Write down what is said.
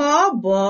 ka ọ bọọ